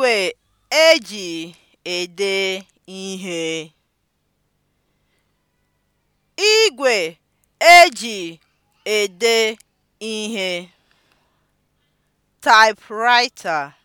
Igwe eji ede ihe. Igwe eji ede ihe. Typewriter